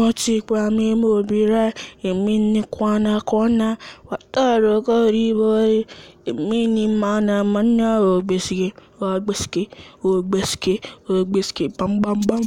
Wachikwa mihubiri imeonekana kuona watarogori imenimana mana obisiki, obisiki, obisiki, obisiki, bam bam bam.